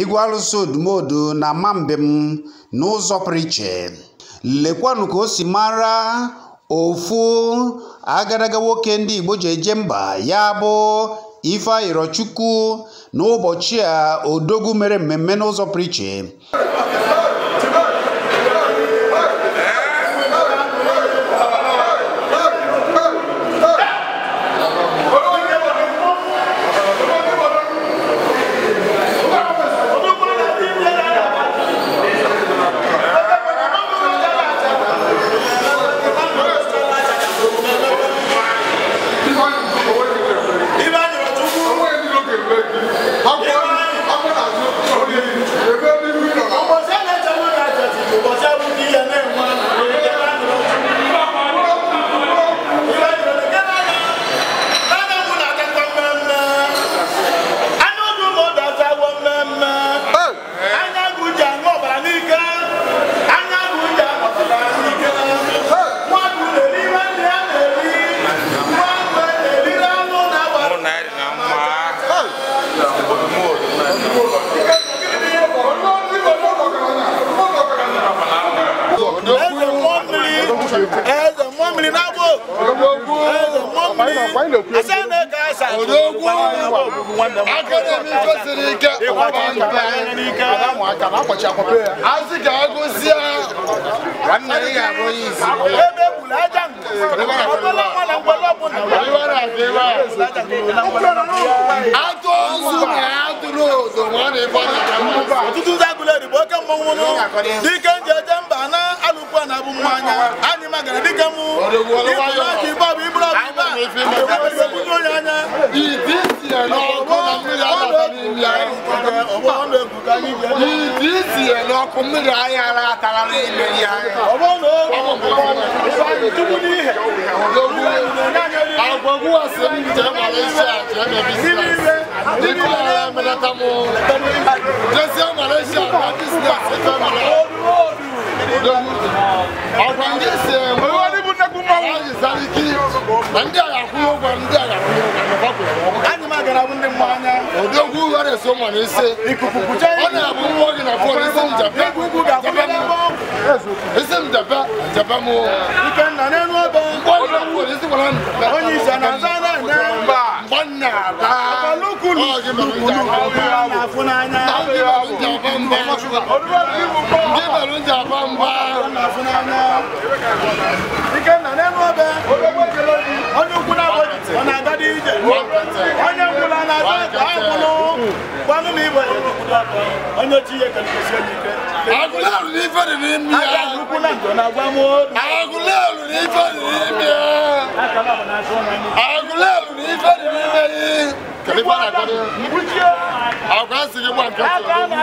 igwe arụsị odumodu na mambem n'ụzọ pụrụ iche lekwanụ ka o si mara ofu agadaga nwoke ndị igbo ji eje mba ya bụ ife na n'ụbọchị a odogwu mere mmemme n'ụzọ pụrụ mmiri n'agbọ asa na-eke asa ebe egburu aja ọbụla nwa na mgbe e e e ọbụla ọtụtụ ndị agụla erigbo oke mmọnwụ n'ike nje alùpùpù àná abúmú anya anyị magara dịka mụ ịbụrụ aka ibe bụ iburu abụba ebudo ya anya ìdí tiẹ̀ n'ọkụ na mmiri abata n'ime anyị ìdí tiẹ̀ n'ọkụ mmiri anyị ara atara n'ime ya agwagwu asị m jee gbara isi a jee mebisi dịka ọrịa melata m jezie Malaysia na bizinesi ebe mara ọkwa ndị ndị agha ndị agha ndị gị na fon isi m jebe isi m bíbẹ̀ ló ń jà pàmpá. ike nna n'elu ọbẹ onye ukwu na-abọghị ọ na-aga dị ije onye ukwu na na-aga ife dị n'ime ife dị n'ime ya agụlelu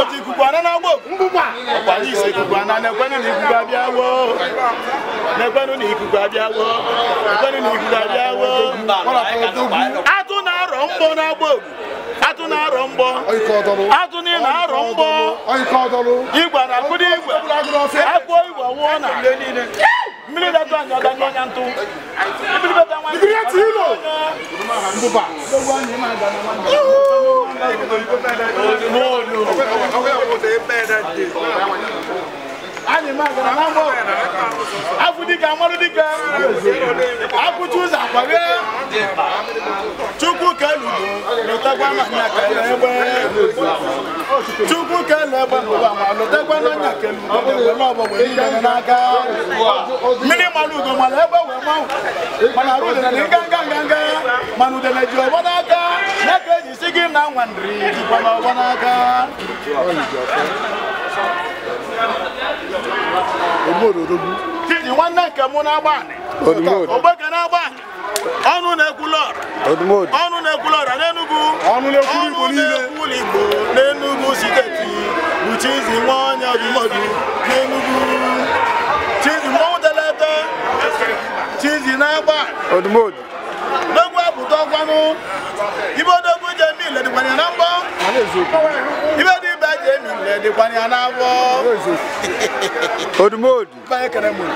otu ikuku ana na-agba ọkwanye isi ikuku ana na na ikuku abịawo na ekwenụ na ikuku abịawo ekwenu na ikuku abịawo atụ na-arọ mgbọ na-agba atụ na-arọ mgbọ atụ niile na-arọ igwe na igwe igwe nwụọ na mmiri dada ọnya ntụ mmiri dada afudika amadudika akutuza akwabe chukwu na nwa nri dịkwa n'aka nwanne nke mụ na-agba ogbe na-agba ọnụ na-ekwula ọra ọnụ na-ekwula ọra n'Enugu ọnụ na-ekwu Igbo butɔ kpanu ibo do ko jɛ mi lɛdi kpani ana bɔ ibo di bɛ jɛ mi lɛdi kpani ana bɔ. odumodu. báyìí kɛnɛ mun.